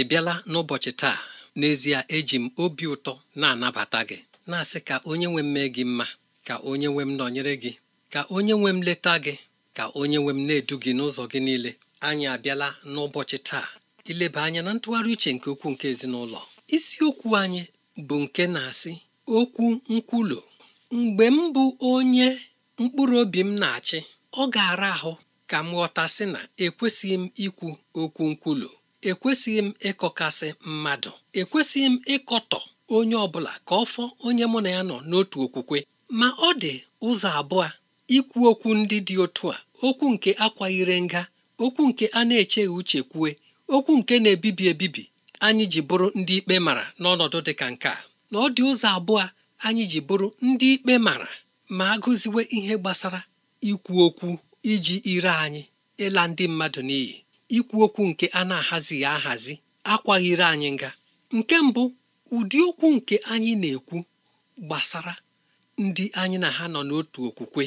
ị bịala n'ụbọchị taa n'ezie eji m obi ụtọ na-anabata gị na-asị ka onye nwe m mee gị mma ka onye nwe m nọnyere gị ka onye nwe m leta gị ka onye nwe m na-edu gị n'ụzọ gị niile anyị abịala n'ụbọchị taa ileba anya na ntụgharị uche nke ukwuu nke ezinụlọ isiokwu anyị bụ nke na-asị okwu nkwulu mgbe m bụ onye mkpụrụ obi m na-achị ọ ga-ara ahụ ka m ghọtasị na ekwesịghị m ikwu okwu nkwulu ekwesịghị m ịkọkasị mmadụ ekwesịghị m ịkọtọ onye ọbụla ka ọ fọ onye mụ na ya nọ n'otu okwukwe ma ọ dị ụzọ abụọ ikwu okwu ndị dị otu a okwu nke akwaghịre nga okwu nke a na-echeghị uche kwue okwu nke na-ebibi ebibi anyị ji bụrụ ndị ikpe mara n'ọnọdụ dị ka nke a na ọ dị ụzọ abụọ anyị ji bụrụ ndị ikpe mara ma agụziwe ihe gbasara ikwu okwu iji ire anyị ịla ndị mmadụ n'iyi ikwu okwu nke a na-ahazighị ahazi akwaghịrị anyị nga nke mbụ ụdị okwu nke anyị na-ekwu gbasara ndị anyị na ha nọ n'otu okwukwe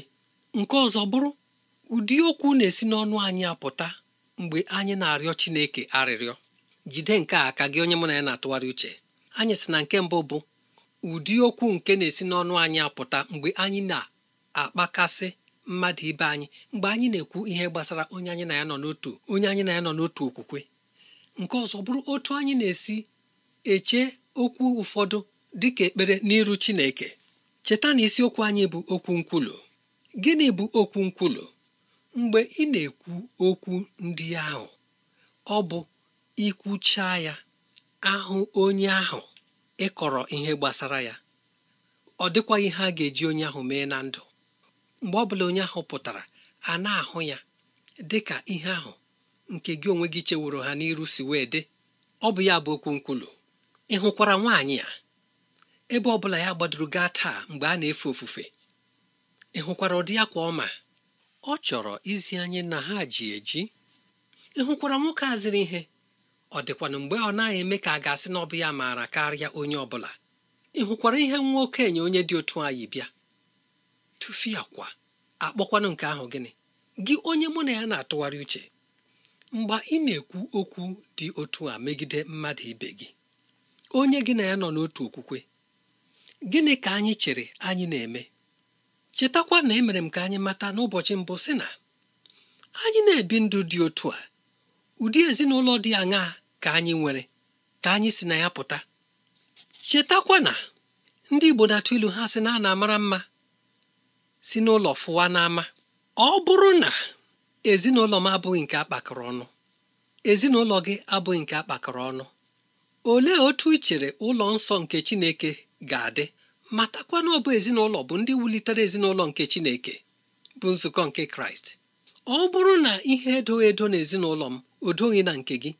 nke ọzọ bụrụ ụdị okwu na-esi n'ọnụ anyị apụta mgbe anyị na-arịọ Chineke arịrịọ jide nke a ka gị onye mụ na ya na-atụgharị uche anyị sị na nke mbụ bụ ụdị okwu nke na-esi n'ọnụ anyị apụta mgbe anyị na-akpakasị mmadụ ibe anyị mgbe anyị na-ekwu ihe gbasara onye anyị na ya nọ n'otu onye anyị na ya nọ n'otu okwukwe nke ọzọ bụrụ otu anyị na-esi eche okwu ụfọdụ dị ka ekpere n'iru Chineke cheta na isiokwu anyị bụ okwu nkwulu gịnị bụ okwu nkwulu mgbe ị na-ekwu okwu ndị ahụ ọ bụ ikwucha ya ahụ onye ahụ ịkọrọ ihe gbasara ya ọ dịkwaghị ihe ga-eji onye ahụ mee na ndụ mgbe ọ bụla onye ahụ pụtara a na-ahụ ya dị ka ihe ahụ nke gị onwe gị cheworo ha n'iru si wee dị ọ bụ ya bụ okwu nkwulu ị hụkwara nwaanyị a ebe ọ bụla ya gbadoro gaa taa mgbe a na-efe ofufe ị hụkwara ụdị kwa ọma ọ chọrọ izi anyị na ha ji eji ị hụkwara nwoke a ihe ọ dịkwana mgbe ọ naghị eme ka a ga-asị na ọ bụ ya maara karịa onye ọ bụla ị hụkwara ihe nwa okenye onye dị otu anyị bịa tụfie akwa akpọkwanụ nke ahụ gịnị gị onye mụ na ya na-atụgharị uche mgbe ị na-ekwu okwu dị otu a megide mmadụ ibe gị onye gị na ya nọ n'otu okwukwe gịnị ka anyị chere anyị na-eme chetakwa na emere m ka anyị mata n'ụbọchị mbụ si na anyị na-ebi ndụ dị otu a ụdị ezinụlọ dị aṅaa ka anyị nwere ka anyị si na ya pụta chetakwa na ndị Igbo na ilu ha sị na a na mma si n'ụlọ fụwa n'ama ọ bụrụ na ezinụlọ m abụghị nke akpakọrọ ọnụ ezinụlọ gị abụghị nke akpakọrọ ọnụ olee otu ị chere ụlọ nsọ nke Chineke ga-adị matakwa na ọ bụ ezinụlọ bụ ndị wulitere ezinụlọ nke Chineke bụ nzukọ nke Kraịst ọ bụrụ na ihe edoghị edo na ezinụlọ m odoghị na nke gị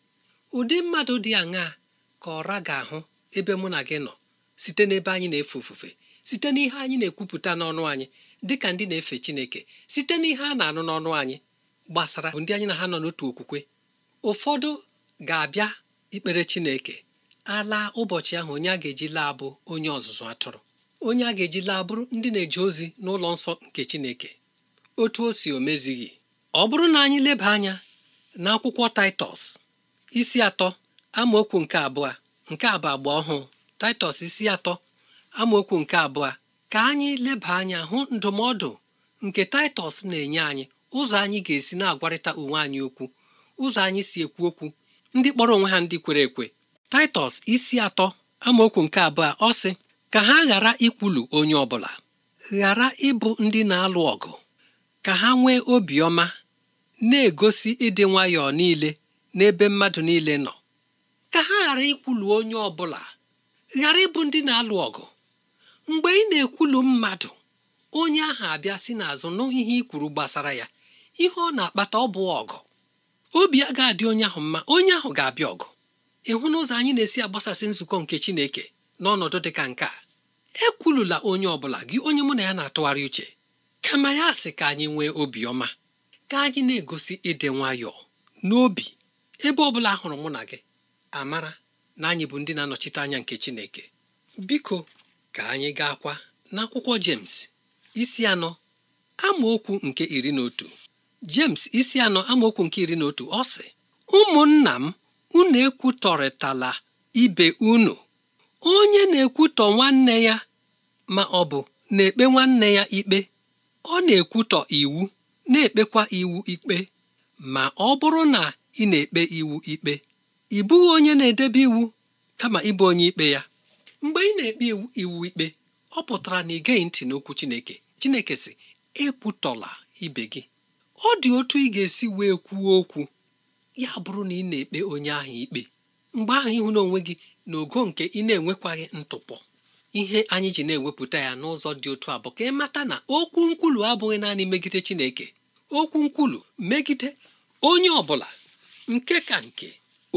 ụdị mmadụ dị aṅaa ka ọra ga-ahụ ebe mụ na gị nọ site n'ebe anyị na-efe ofufe site n'ihe anyị na-ekwupụta n'ọnụ anyị dịka ndị na-efe Chineke site n'ihe a na-anụ n'ọnụ anyị gbasara bụ ndị anyị na ha nọ n'otu okwukwe ụfọdụ ga-abịa ikpere Chineke alaa ụbọchị ahụ onye a ga-eji laa bụ onye ọzụzụ atụrụ onye a ga-eji laa bụrụ ndị na-eje ozi n'ụlọ nsọ nke Chineke otu o si omezighị ọ bụrụ na anyị leba anya akwụkwọ Taịtọs isi atọ amaokwu nke abụọ nke abụ agba ọhụụ Taịtọs isi atọ amaokwu nke abụọ ka anyị leba anya hụ ndụmọdụ nke Taịtọs na-enye anyị ụzọ anyị ga-esi na-agwarịta onwe anyị okwu ụzọ anyị si ekwu okwu ndị kpọrọ onwe ha ndị kwere ekwe Taịtọs isi atọ amaokwu nke abụọ ọ sị ka ha ghara ikwulu onye ọbụla ghara ịbụ ndị na-alụ ọgụ ka ha nwee obiọma na-egosi ịdị nwayọọ niile n'ebe mmadụ niile nọ ka ha ghara ikwulu onye ọbụla ghara ịbụ ndị na-alụ ọgụ mgbe ị na-ekwulu mmadụ onye ahụ abịa si n'azụ nụghị ihe gbasara ya ihe ọ na-akpata ọ bụ ọgụ obi a ga-adị onye ahụ mma onye ahụ ga-abịa ọgụ ịhụ n'ụzọ anyị na-esi agbasasị nzukọ nke Chineke n'ọnọdụ dị ka nke a ekwulula onye ọ bụla gị onye mụ na ya na-atụgharị uche kama ya sị ka anyị nwee obiọma ka anyị na-egosi ịdị nwayọọ n'obi ebe ọ bụla hụrụ mụ na gị amara na anyị bụ ndị na-anọchite anya nke Chineke biko ka anyị ga-akwa n'akwụkwọ James isi anọ amaokwu nke iri na otu jems isi anọ amaokwu nke iri na otu ọ sị ụmụnna m unu ekwutọrịtala ibe unu onye na-ekwutọ nwanne ya ma ọ bụ na-ekpe nwanne ya ikpe ọ na-ekwutọ iwu na-ekpekwa iwu ikpe ma ọ bụrụ na ị na-ekpe iwu ikpe ị bụghị onye na-edebe iwu kama ịbụ onye ikpe ya mgbe ị na-ekpe iwu ikpe ọ pụtara na ị geghị ntị n'okwu Chineke Chineke sị ekwutọla ibe gị ọ dị otu ị ga-esi wee kwuo okwu ya bụrụ na ị na-ekpe onye ahụ ikpe mgbe ahụ ịhụ n'onwe gị n'ogo nke ị na-enwekwaghị ntụpọ ihe anyị ji na-ewepụta ya n'ụzọ dị otu a bụ ka ị mata na okwu nkwulu abụghị naanị megide Chineke okwu nkwulu megide onye ọ bụla nke ka nke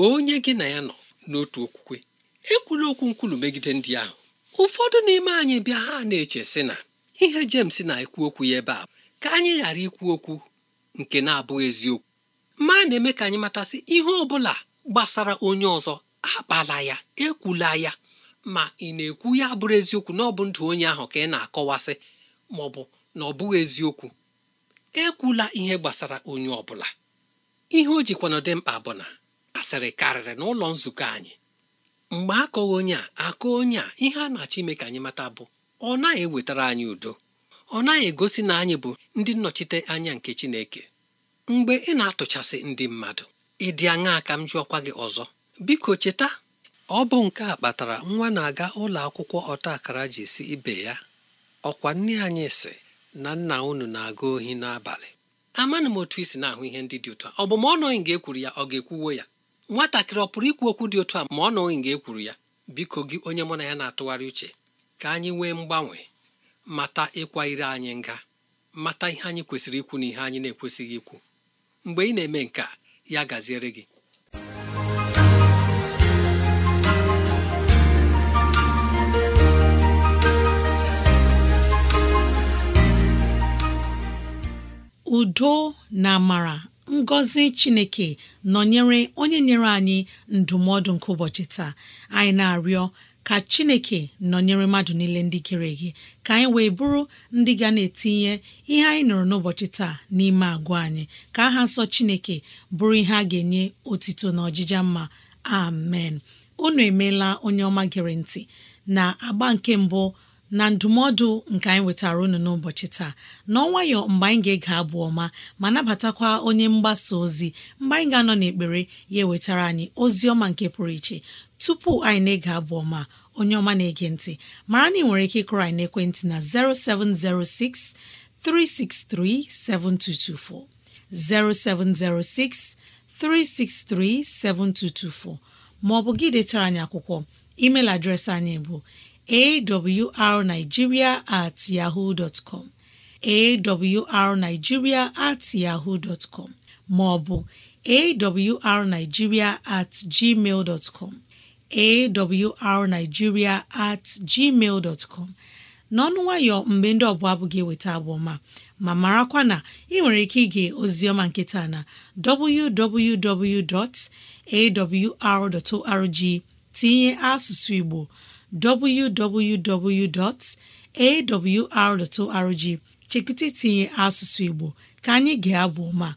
onye gị na ya nọ n'otu okwukwe ekwula okwu nkwulu megide ndị ahụ ụfọdụ n'ime anyị bịa ha na-eche sị na ihe Jems na-ekwu okwu ya ebe a ka anyị ghara ikwu okwu nke na-abụghị eziokwu ma na-eme ka anyị matasị ihe ọ bụla gbasara onye ọzọ akpala ya ekwula ya ma ị na-ekwu ya bụrụ eziokwu na ọ bụ ndụ onye ahụ ka ị na-akọwasị ma ọ bụ na ọ bụghị eziokwu ekwula ihe gbasara onye ọ bụla ihe o jikwana dị mkpa bụ na asịrị karịrị n'ụlọ nzukọ anyị mgbe akọghị onye a akọ onye a ihe a na-achọ ime ka anyị mata bụ ọ naghị ewetara anyị udo ọ naghị egosi na anyị bụ ndị nnọchite anya nke Chineke mgbe ị na-atụchasị ndị mmadụ ị dị aṅaa ka m jụọkwa gị ọzọ biko cheta ọ bụ nke a kpatara nwa na-aga ụlọ akwụkwọ ọta akara ji si ibe ya ọkwa nne anyị si na nna unu na-aga ohi n'abalị amaghị m otu i si na-ahụ ihe ndị dị ụtọ ọ bụ ma ọ nọghị nga ekwuru ya ọ ga-ekwuwo ya nwatakịrị ọ pụrụ ikwu okwu dị otu a ma ọ nọghị nga ekwuru ya biko gị onye mụ na ya na-atụgharị uche ka anyị nwee mgbanwe mata ịkwa ire anyị nga mata ihe anyị kwesịrị ikwu na ihe anyị na-ekwesịghị ikwu mgbe ị na-eme nke a ya gaziere gị udo na amara ngọzi chineke nọnyere onye nyere anyị ndụmọdụ nke ụbọchị taa anyị na-arịọ ka chineke nọnyere mmadụ niile ndị kere gị ka anyị wee bụrụ ndị ga na-etinye ihe anyị nụrụ n'ụbọchị taa n'ime agwa anyị ka aha nsọ chineke bụrụ ihe a ga-enye otito na ọjịja mma amen unu emeela onye ọma gere ntị na agba nke mbụ na ndụmọdụ nke anyị wetara unu n'ụbọchị taa n'ọnwayọ mgbe anyị ga-ege abụ ọma ma nabatakwa onye mgbasa ozi mgbe anyị ga-anọ n'ekpere ya ewetara anyị ozi ọma nke pụrụ iche tupu anyị na-ege abụ ọma onye ọma na-ege ntị mara na ị nwere ike ịkụrọ anyị naekwentị na 0706 363 7224 0706 363 7224 ma ọ bụ gị detara anyị akwụkwọ email adreesị anyị bụ awrnigeria at yahoo dot com awrnigeria at yahoo dot maọbụ awrnigeria at gmail dot com awrnigeria at gmail dot n'ọnụ nwayọ mgbe ndị ọbụla abụghị eweta abụ ma marakwa na ị nwere ike ige ozioma nkịta na www.awr.org tinye asụsụ Igbo www.awr.org chekwụta itinye asụsụ Igbo ka anyị ga-abụ ma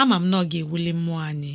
ama m na ọ ga-ewuli mmụọ anyị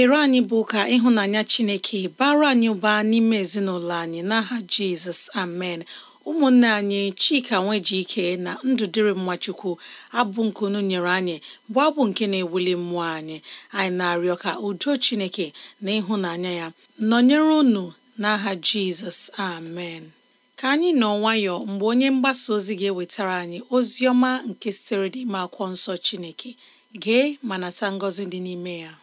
ekpere anyị bụ ka ịhụnanya Chineke bara anyị ụba n'ime ezinụlọ anyị n'aha Jizọs amen ụmụnne anyị Chika Nwejike na Ndụdịrị Mmachukwu abụ nke unu nyere anyị bụ abụ nke na-ewuli mmụọ anyị anyị na-arịọ ka udo Chineke na ịhụnanya ya nọnyere unu n'aha Jizọs amen ka anyị nọ nwayọ mgbe onye mgbasa ozi ga-ewetara anyị ozi ọma nke sitere ime akwụkwọ nsọ Chineke gee ma nata ngọzi dị n'ime ya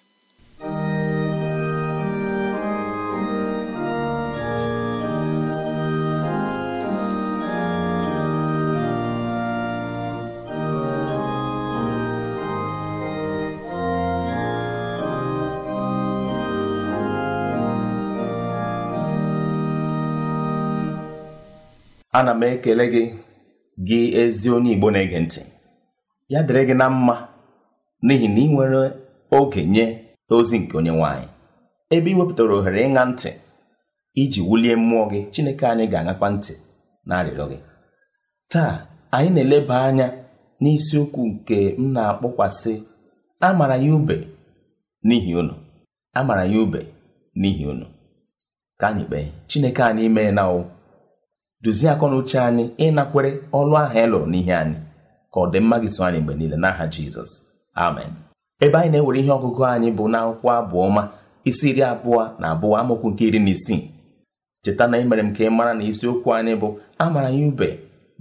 ana m ekele gị gị ezi onye igbo na-ege ntị ya dịrị gị na mma n'ihi na ị nwere oge nye ozi nke onye nwanyị ebe ị wepụtara ohere ịṅa ntị iji wulie mmụọ gị chineke anyị ga-aṅakwa ntị na arịrịọ gị taa anyị na-eleba anya n'isiokwu nke m na-akpọkwasị amara ya ube n'ihi unu amara ya ube n'ihi unu ka anyị kpee chineke anyị mee na o dozie akọnuche anyị ịnakwere ọlụ ahụ e lụrụ n'ihe anyị ka ọ dị mma gị so anyị mgbe niile n'aha jizọs amen ebe anyị na-ewere ihe ọgụgụ anyị bụ na abụọ ma isi iri abụọ na abụọ amaokwu nke iri na isii cheta na imere m ka ị mara na isiokwu anyị bụ amara ya ube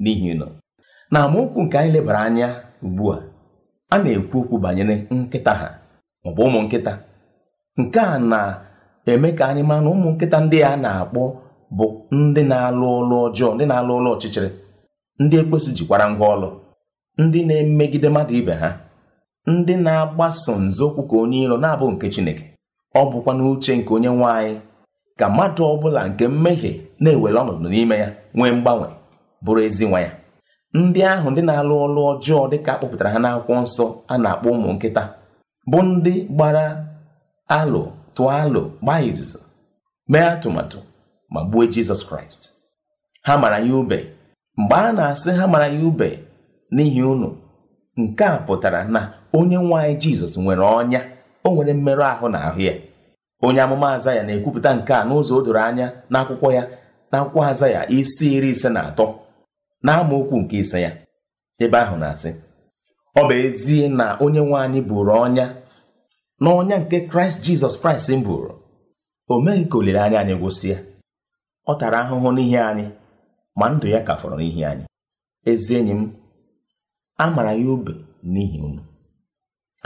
n'ihi nọ na amaokwu nke anyị lebara anya ugbu a a na-ekwu okwu banyere nkịta ha maọbụ ụmụ nkịta nke a na-eme ka anyị mara na ụmụ nkịta ndị a na-akpọ bụ ndị na-alụ ọlụ ọjọọ ndị na-alụ ọlụ ọchịchịrị ndị ekwesu jikwara ngwa ọlụ ndị na-emegide mmadụ ibe ha ndị na-agbaso nzọụkwụ ka onye iro na-abụ nke Chineke ọ bụkwa n'uche nke onye nwanyị ka mmadụ ọ bụla nke mmehie na-ewere ọnọdụ n'ime ya nwee mgbanwe bụrụ ezi nwa ya ndị ahụ ndị na-alụ ọlụ ọjọọ dịka akpọpụtara kpọpụtara ha n'akwụkwọ nsọ a na-akpọ ụmụ nkịta bụ ndị gbara alụ tụọ alụ gbaa izuzo mee atụmatụ ma gbuo jizọs kraịst ha mara ya ube mgbe a na-asị ha mara ya ube n'ihi unu nke a pụtara na onye nwanyị jizọs nwere ọnya o nwere mmerụ ahụ na ahụ ya onye amụma azaya na-ekwupụta nke a n'ụzọ o doro anya n'akwụkwọ ya akwụkwọ aza ya isi iri ise na atọ na n'amaokwu nke ise ya ebe ahụ na-asị ọ bụ ezie na onye Nwanyị bụrụ ọnya na ọnya nke kraịst jizọs kraịst m buru o meghị ka olileanya anyị gwụsịa ọ tara ahụhụ n'ihi anyị ma ndụ ya ka fọrọ n'ihi anyị ezi enyi m a mara ya ube n'ihi unu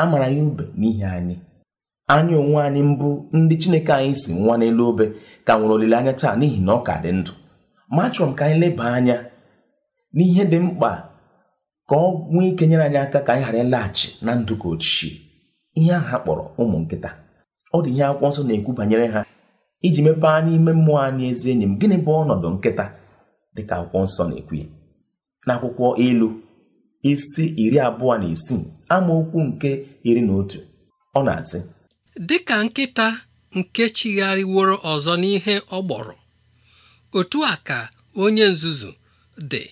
a mara ya ube n'ihi anyị anyị onwe anyị mbụ ndị chineke anyị si nwa n'elu obe ka nwere olileanya taa n'ihi na ọ ka dị ndụ ma achọrọ m ka anyị leba anya n'ihe dị mkpa ka ọ nwee ike nyere anyị aka ka anyị ghara ịlaghachi na ndụ ka ochie ihe ahụ kpọrọ ụmụ nkịta ọ dị ihe akwụkwọ nsọ na-ekwu banyere ha iji mepee ime mmụọ anyị ezi enyi m gịnị bụ ọnọdụ nkịta dịka akwụkwọ nsọ na-ekwu na akwụkwọ ilu isi iri abụọ na isii amaokwu nke iri na otu ọ na-asị dịka nkịta nke chigharịworo ọzọ n'ihe ọ gbọrọ otu a ka onye nzuzu dị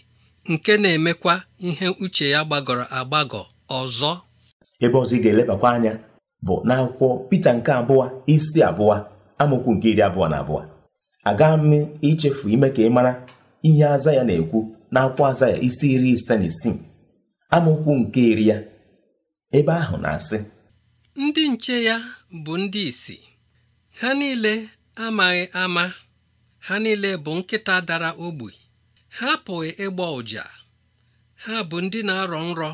nke na-emekwa ihe uche ya gbagọrọ agbagọ ọzọ ebe ọzọ ị ga-elebakwa anya bụ n'akwụkwọ Pita nke abụọ isi abụọ amaokwu nke iri abụọ na abụọ aga m ichefu ime ka ị mara ihe aza ya na-ekwu na akwa aza ya isi iri ise na isii amaokwu nke iri ya ebe ahụ na-asị ndị nche ya bụ ndị isi ha niile amaghị ama ha niile bụ nkịta dara ogbi ha apụghị ịgba ụja ha bụ ndị na-arọ nrọ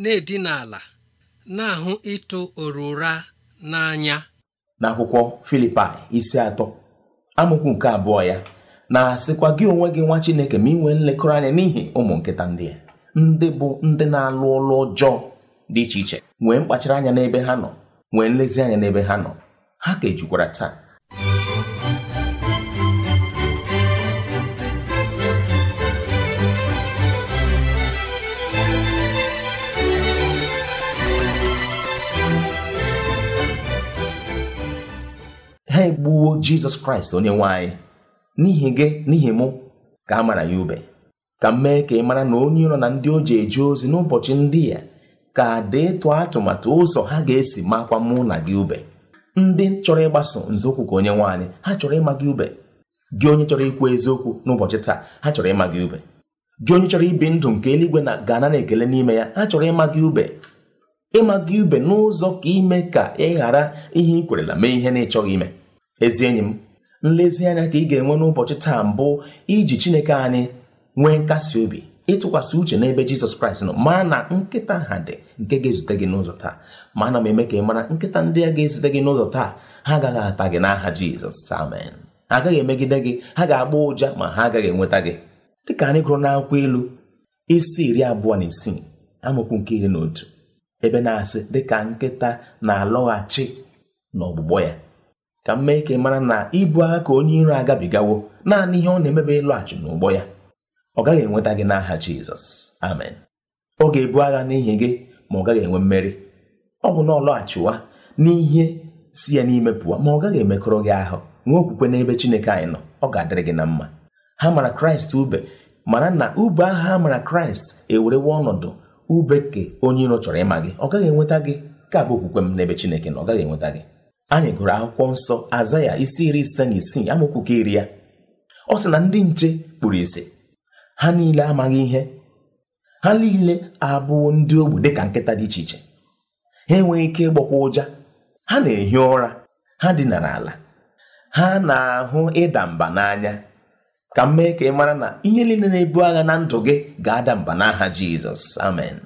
na-edina ala na-ahụ ịtụ orura n'anya n'akwụkwọ Filipaị isi atọ amokwu nke abụọ ya na-asịkwa gị onwe gị nwa Chineke ma nwee nlekọta anya n'ihi ụmụ nkịta ndị a ndị bụ ndị na-alụ ụlọ ọjọọ dị iche iche nwee mkpachara anya n'ebe ha nọ nwee nlezianya n'ebe ha nọ ha ka ejukwara taa gbuo jizọs kraịst onye nwe n'ihi gị n'ihi mụ ka a mara ya ube ka m mee ka ị mara na onye nọ na ndị o ji eje ozi n'ụbọchị ndị ya ka deetụ atụmatụ ụzọ ha ga-esi makwa mụ na gị ube ndị chọrọ ịgbaso nzọụkwụ ka onye nwe anyị ha chọrọ ịma gị ube gị onye chọrọ ikwu eziokwu n'ụbọchị taa ha chọrọ ịma gị ube gị onye chọrọ ibi ndụ nke eluigwe na gana na ekele n'ime ya ha chọrọ ịma gị ube ịma gị ube n'ụzọ ka ime ka ị ghara ihe ị kwerela mee ihe na ịchọghị ime ezi enyi m nlezianya ka ị ga-enwe n'ụbọchị taa mbụ iji chineke anyị nwee nkasi obi ịtụkwasị uche n'ebe jizọs kraịst nọ mara na nkịta ha dị nke ga-ezute gị n'ụzọ taa ma ana m eme ka ị mara nkịta ndị a ga-ezute gị n'ụzọ taa ha agaghị ata gị n'aha jizọs amen ha agaghị emegide gị ha ga-agba ụja ma ha agaghị enweta gị dịka anyị gụrụ n'akwụkwọ ilu isi iri abụọ na isii amaokwu nke iri na otu ebe na-asị dịka nkịta na-alọghachi n'ọgbụgbọ ya ka m mee ka ị mara na ibu agha ka onye iro agabigawo naanị ihe ọ na-emebe ịlọghachi n'ụgbọ ya ọ gaghị enweta gị n'aha Jizọs amen ọ ga-ebu agha n'ihi gị ma ọ gaghị enwe mmeri ọ bụ na ọ lọghachiwa n'ihe si ya n'ime pụọ ma ọ gaghị emekọrọ gị ahụ nwee okwukwe n'ebe Chineke anyị nọ ọ ga-adịrị gị na mma ha mara Kraịst ube mana na ube agha ha mara Kraịst ewerewe ọnọdụ ube ubeke onye iro chọrọ ịma gị ọ gaghị enweta gị ka bụ okwukwe m n'ebe Chineke na ọ gaghị enweta gị anyị gụrụ akwụkwọ nsọ aza ya isi iri ise na isii amaokwu iri ya ọ sị na ndị nche kpuru isi ha niile amaghị ihe ha niile abụọ ndị ogbu dịka nkịta dị iche iche ha enweghị ike ịgbakwa ụja ha na-ehi ụra ha dinara ala ha na-ahụ ịda mba n'anya ka m mee ka ị mara na ihe niile na-ebu agha na ndụ gị ga-ada mba n'aha Jizọs amen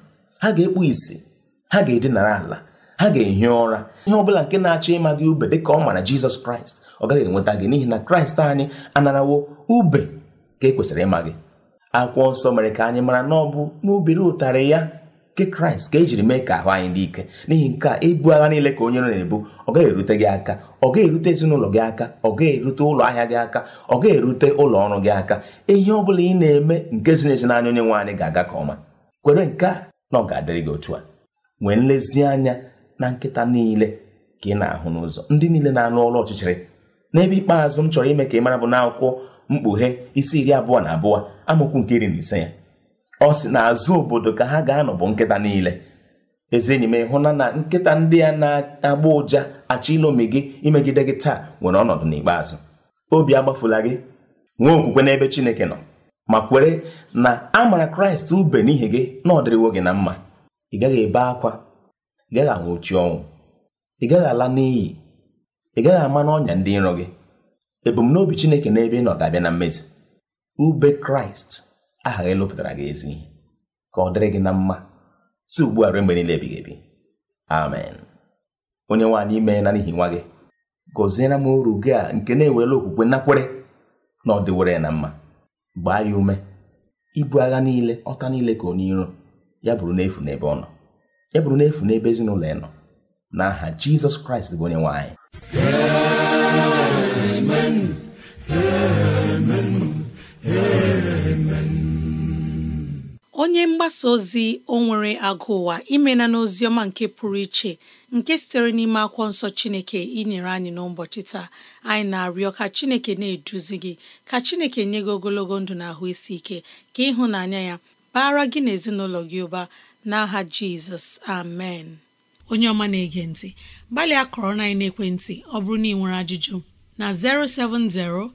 ha ga-ekpu isi ha ga-edinara ala ha ga-ehi ụra ihe ọ bụla nke na-achọ ịma gị ube dịka ọ mara jizọs kraịst ọ gaghị enweta gị n'ihi na kraịst anyị anarawo ube ka e kwesịrị ịma gị akwụkwọ nsọ mere ka anyị mara na ọ bụ n'obere ụtarị ya nke kraịst ka ejiri mee ka ahụ anyị dị ike n'ihi nke a ibu agha niile ka onye na-ebu ọ gaghị erute gị aka ọ gaghị erute ezinụlọ gị aka ọ gaghị erute ụlọ ahịa gị aka ọ gaghị erute ụlọ ọrụ gị aka ihe ọ bụla ị na-eme nke ziri ezi n'anya onye nwe anyị ga-aga ka ọma kwere nke a na ọ ga-adịrị gị otu a nwee nlezianya na nkịta niile ka ị na-ahụ n'ụzọ ndị niile na-anụ ọrụ ọchịchịrị n'ebe ikpeazụ m chọrọ ime ka ị mara bụ akwụkwọ mkpughe isi iri abụọ na abụọ amaokwu nke iri na ise ya ọ sị na azụ obodo ka ha ga-anọ bụ nkịta niile eze enyi m ịhụna na nkịta ndị a na-agba ụja achọ ilomi gị imegide gị taa nwere ọnọdụ n'ikpeazụ obi agbafula gị nwee okwukwe n'ebe Chineke nọ ma kwere na a mara Kraịst ube n'ihi gị na ọ dịrịwo gị na mma ị gaghị ebe akwa ị gaghị anwụchi ọnwụ ị gaghị ala n'iyi ị gaghị ama n'ọnya ndị nrọ gị ebumnobi Chineke n'ebe ị nọ ga-abịa na mmezi ube Kraịst aha gị lụpụtara gị ezi ka ọ dịrị gị na mma si ugbu a ruo mgbe niile ebighị ebi amen onye nwaanyị ime na n'ihi nwa gị gọziere m uru gị a nke na-ewere okwukwe nakwere na ọ dịwere na mma gbaa ya ume ibu agha niile ọta niile ka onye iro ya bụrụ n'efu n'ebe ọ nọ ya bụrụ n'efu n'ebe ezinụlọ ya nọ n'aha jizọs kraịst bụ onye anyị onye mgbasa ozi o nwere agụ ụwa imena n'ozi ọma nke pụrụ iche nke sitere n'ime akwụkwọ nsọ chineke inyere anyị n'ụbọchị taa anyị na-arịọ ka chineke na-eduzi gị ka chineke nye gị ogologo ndụ na ahụ isi ike ka ịhụnanya ya bara gị na ezinụlọ gị ụba n'aha jizọs amen onye ọma na-ege ntị gbalịa kọrọ na ekwentị ọ bụrụ na ị nwere ajụjụ na 07063637224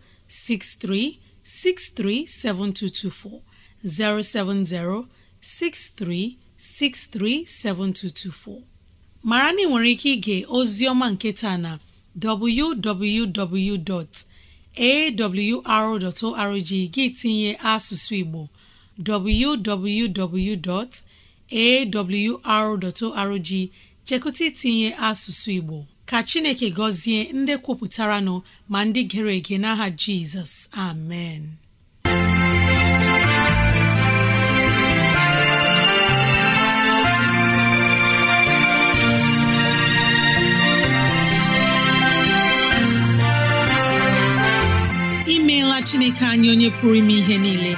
07063637224 mara na ị nwere ike ige ozi ọma nke na www.awr.org gị tinye asụsụ Igbo www. awr.org chekụta itinye asụsụ Igbo ka Chineke gọzie ndị kwupụtara nọ ma ndị gere ege n'aha Jizọs amen imeela Chineke anyị onye pụrụ ime ihe niile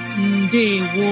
ndewo